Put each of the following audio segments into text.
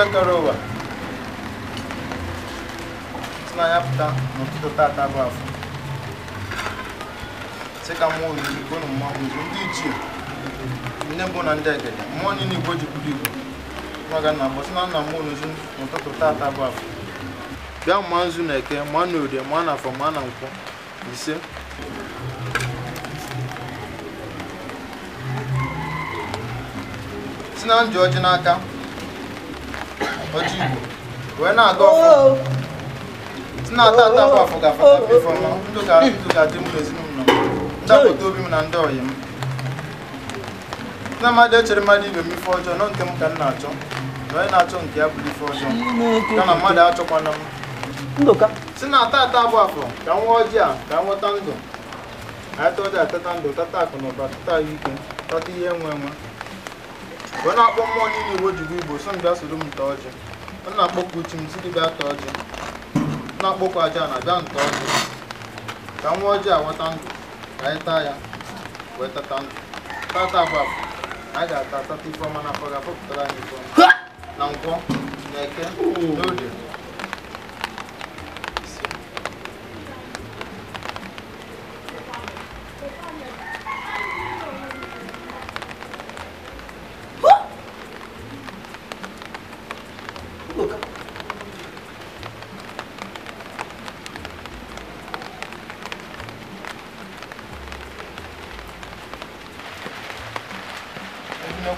ife kere ụwa si na ya pụta tata bụ afọ sị ka mmụọ ozugbo na mmanwụ ozugbo ndị ichie ndị mbụ na ndị mmụọ niile igbo jikwuru igbo nwaga na agbọ si na nna mmụọ n'ozu n'ụtụtụ tata bụ afọ bịa ma nzu na eke ma na orie ma na afọ na nkwọ ise si na n'aka ọjị Igbo wee na-aga ọfụ oh, oh. na-ata ata oh, afọ afọ ga-afọta ifeọma ndụ ga-adị m n'ezinụlọ m ndapụta obi na ndị ọyị m na ibe m ife ọjọọ nọ nke m ka m na-achọ na onye na-achọ nke ya ife ọjọọ na mmadụ achọkwana m si ata ata afọ ka nwa ọjị a ka nweta ndụ anyị atata ndụ tata akụ na ụba tata ahụike tata ihe nwe enwe. wee na-akpọ mmụọ niile iwe ojigbo igbo so m bịa soro m nta ọjị m na-akpọkwa uchi m site bịa ta ọjị na-akpọkwa aja na bịa nta ọjị ka nwa ọjị awata ndụ ka anyị taa ya wee tata ndụ tata abụ anyị ga-ata tata ifeọma na afọ ga-afọpụtara anyị ifeọma na nkwọ na eke n'oge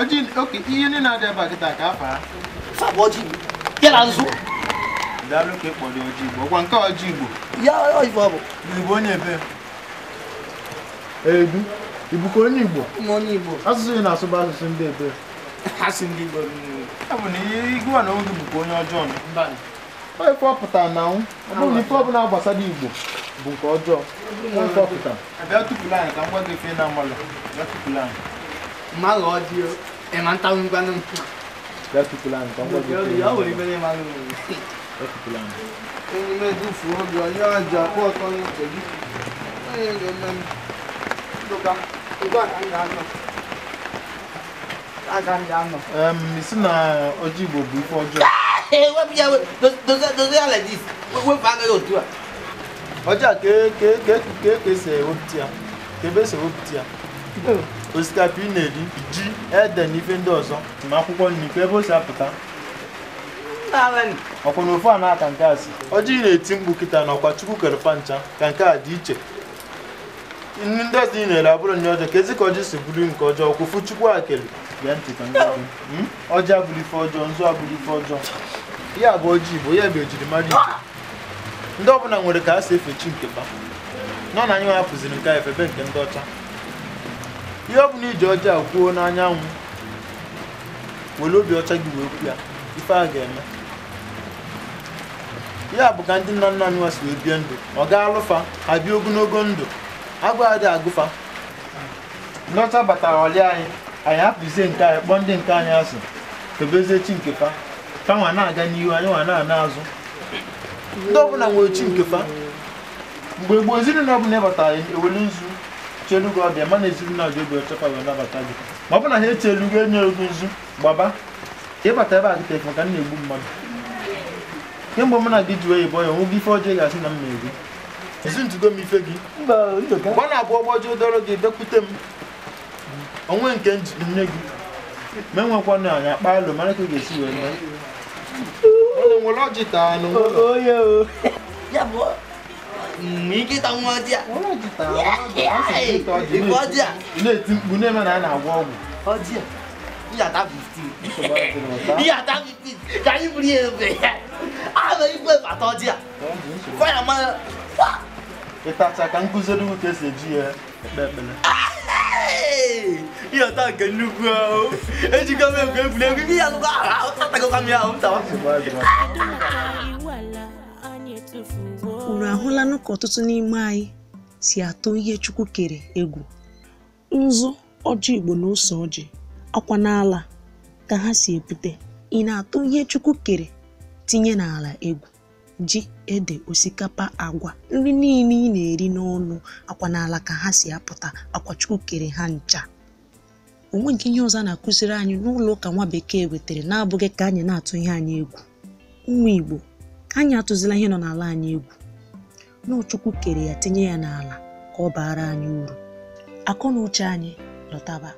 ọjị oke ihe ndị na-adị ebe a kịta ka afara fabụ ọjị ya na nzu daalụ ka ọjị igbo nke ọjị igbo ya ọjịbọ bụ igbo onye ebe edu onye igbo onye igbo asụsụ ị na-asụ bụ asụsụ ndị ebe igbo bụ na ihe igwe na onye ọjọọ onye na nwụ ọ na ife gbasara igbo bụ nke ọjọọ onye ife ọpụtara abịa tupu anyị ka m gị ife má 攞住，夜晚兜咁關都唔得。不要去不爛，講過就。不要我那邊嘛，不要去不爛。我那邊都符合了，你看家伙剛要走，哎，人们，都干，都干干干了。Um, it's not Ojibo before John. Hey, what be your those those those like this? What bag you do? Ọjà ke ke ke ke ke se o tia. Ke be se o tia. osikapa ị na-eri ji ede hmm? na ife ndị ọzọ ma akwụkwọ nri ka ebe o si apụta ọkwa na ofe a na-aka nke si ọjị na-eti mkpu kịta na ọkwa chukwu kerepa ncha ka nke a dị iche nri ndị ọzọ ị na-ere abụrụ nri ọjọọ ka ezi ka ọjị si bụrụ nke ọjọọ kwụfụ chukwu akele gee ntị ka ọjị abụrụ ife ọjọọ nzu abụrụ ife ọjọọ ya bụ ọjị igbo ya bụ ejirimara igbo ndị ọbụla nwere ka a si efe chi nke ba nọ na anyị hapụziri nke a efebe nke ndị ọcha ihe ọ bụla iji ọjọọ kwuo n'anyanwụ were obi ọcha gị wee kwu ya ife a ga-eme ya bụ ka ndị nna nna anyị wasi wee bie ndụ ọ gaa alụfa ha bịa ogologo ndụ agụ adị agụfa ndị batara ọlị anyị anyị hapụzie nke anyị kpọọ ndị nke anyị asị kebezie chi nke fa fa nwa na-aga n'ihu anyị nwa na-ana azụ ndị ọbụla nwere chi nke fa mgbe gboo ezinụlọ ọbụla ịbatara ewele nzu chelugo ọ dị ma na ezinụlọ gị obi ọchọkwa wee nabata gị ma ọ bụ na ha echelugo enye ego nzu gbaba ịbata ebe a gị tefe ka m na-egbu mmadụ kemgbe m na gị ji oyibo ya nwụgo ife ọjọọ ga-asị na m na-egbu ezi ntugo m ife gị mgbe ọ na-abụ ọgbọ ọjọọ gị bekwute m onwe nke nne gị ma enwekwa na anya kpa alụ mara ka ị ga-esi wee mee nwere ọjị taa n'onwe mgbe nkịta nwa ọjịa na-eti mkpu na-eme na a na-agwọ ọgwụ ịyata 15 ka anyị buru ya ebe ya ana igwe bata ọjịa kwa ya mara ịtacha ka nkụziri ugwu ka esi eji ya ekpe ekpere ịyọta nke nnukwu ahụ ejikọ m egwu egwuregwu ihe ya nụkọ ahụ ahụ tatagọkwa m ya ahụ ntawa unu ahụlanụ ka ọtụtụ n'ime anyị si atụ ihe Chukwu kere egwu nzu ọjị Igbo na ose ọjị akwa n'ala ka ha si epute ị na-atụ ihe Chukwu kere tinye n'ala egwu ji ede osikapa agwa nri niile ị na-eri n'ọnụ akwa n'ala ka ha si apụta akwa Chukwu kere ha ncha onwe nke ihe ọzọ a na-akụziri anyị n'ụlọ ụka nwa bekee wetara na-abụghị ka anyị na-atụ ihe anyị egwu ụmụ Igbo ka anyị atụzila ihe nọ n'ala anyị egwu n'ụchukwu kere ya tinye ya n'ala ka ọ baara anyị uru akọ na uche anyị lọtaba